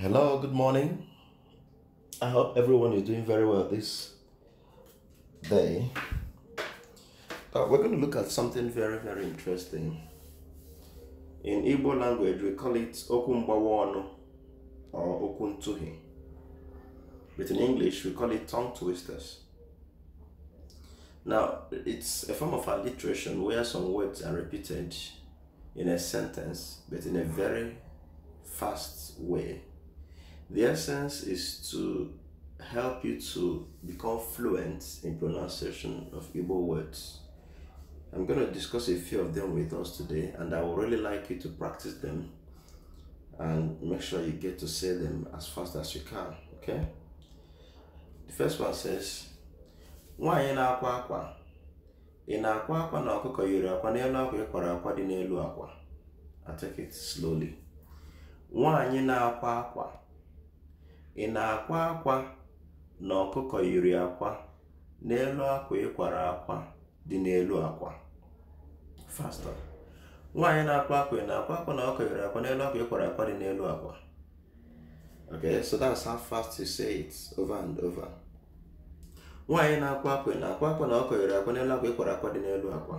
Hello, good morning. I hope everyone is doing very well this day. Uh, we're going to look at something very, very interesting. In Igbo language, we call it Okumbawono or Okuntuhi. But in English, we call it tongue twisters. Now, it's a form of alliteration where some words are repeated in a sentence, but in a very fast way the essence is to help you to become fluent in pronunciation of Igbo words. I'm going to discuss a few of them with us today, and I would really like you to practice them and make sure you get to say them as fast as you can. Okay? The first one says, Nwanyị na-akwa akwa. Ị na-akwa akwa na ọkụkọ yiri akwa n'elu akwa ị kwara akwa dị n'elu akwa. I take it slowly. Nwanyị na-akwa akwa. ị na-akwa akwa na ọkụkọ yiri akwa n'elu akwa ịkwara akwa dị n'elu akwa faster nwaanyị na-akwa akwa ị na-akwa akwa na ọkụkọ yiri akwa n'elu akwa ịkwara akwa dị n'elu akwa okay so that's how fast you say it over and over nwaanyị na-akwa akwa ị na-akwa akwa na ọkụkọ yiri akwa n'elu akwa ịkwara akwa dị n'elu akwa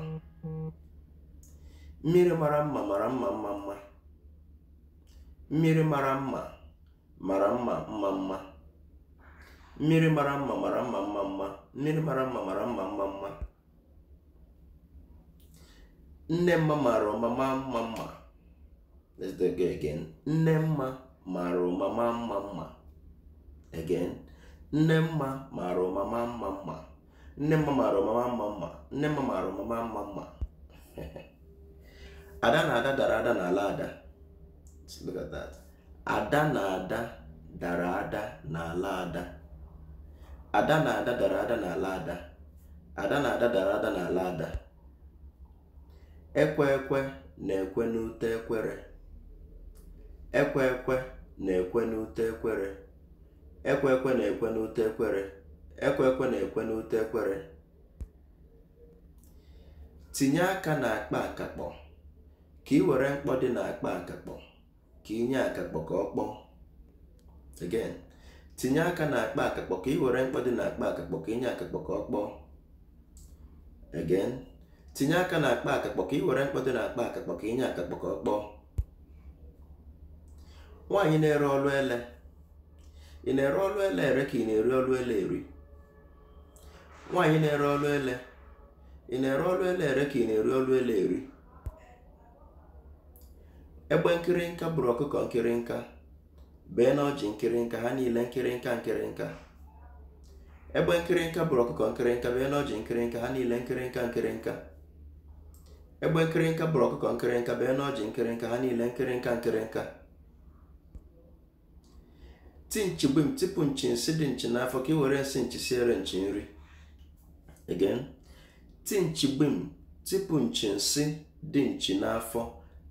mmiri mara mma mara mma mma mma mmiri mara mma mara mma mma mma mmiri mara mma mara mma mma mma mmiri mara mma mara mma mma mma nne mma mara ọmama mma mma let's do it again nne mma mara ọmama mma mma again nne mma mara ọmama mma mma nne mma mara ọmama mma mma nne mma mara ọmama mma mma ada na ada dara ada na ala ada look at that ada na ada dara ada n'ala ada na ada ada n'ala na ada ekwe ekwe na-ekwe n'ute ekwere ekwe ekwe na-ekwe n'ute ekwere ekwe ekwe na-ekwe na-ekwe ekwere tinye aka n'akpa akakpọ ka ị were mkpọ dị n'akpa akakpọ ka inye akakpọ ka ọ kpọọ tinye aka na akpa akakpọ ka were mkpọ na akpa akakpọ ka na nwaanyị na-ere ọlụ ele ị na-ere ọlụ ele ere ka ị na-eri ọlụ ele eri ere ọlụ ele ị ọlụ ele eri egbe nkịrịnka bụrụ ọkụkọ nkịrịnka bee na ọjị nkịrịnka ha niile nkịrịnka nkịrịnka egbe nkịrịnka bụrụ ọkụkọ nkịrịnka bee na ọjị nkịrịnka ha niile nkịrịnka nkịrịnka egbe nkịrịnka bụrụ ọkụkọ nkịrịnka bee na ọjị nkịrịnka ha niile nkịrịnka nkịrịnka ti nchi gbim tipụ nchi nsị dị nchi n'afọ ka ị were nsị nchi siere nchi nri again ti nchi gbim tipụ nchi nsị dị nchi n'afọ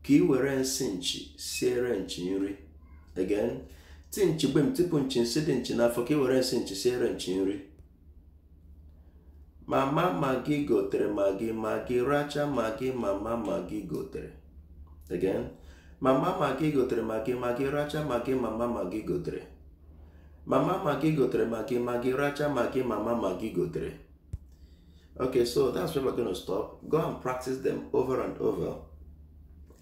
ka ị were nsị nchi siere nchi nri again ti nchi gbe m tupu nchi nsị dị nchi n'afọ ka ị were nsị nchi siere nchi nri mama magi gotere magi magi racha magi mama magi gotere again mama magi gotere magi magi racha magi mama magi gotere mama magi gotere magi magi racha magi mama magi gotere okay so that's where we're going to stop go and practice them over and over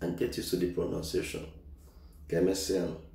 and get used to the pronunciation. Kemesean.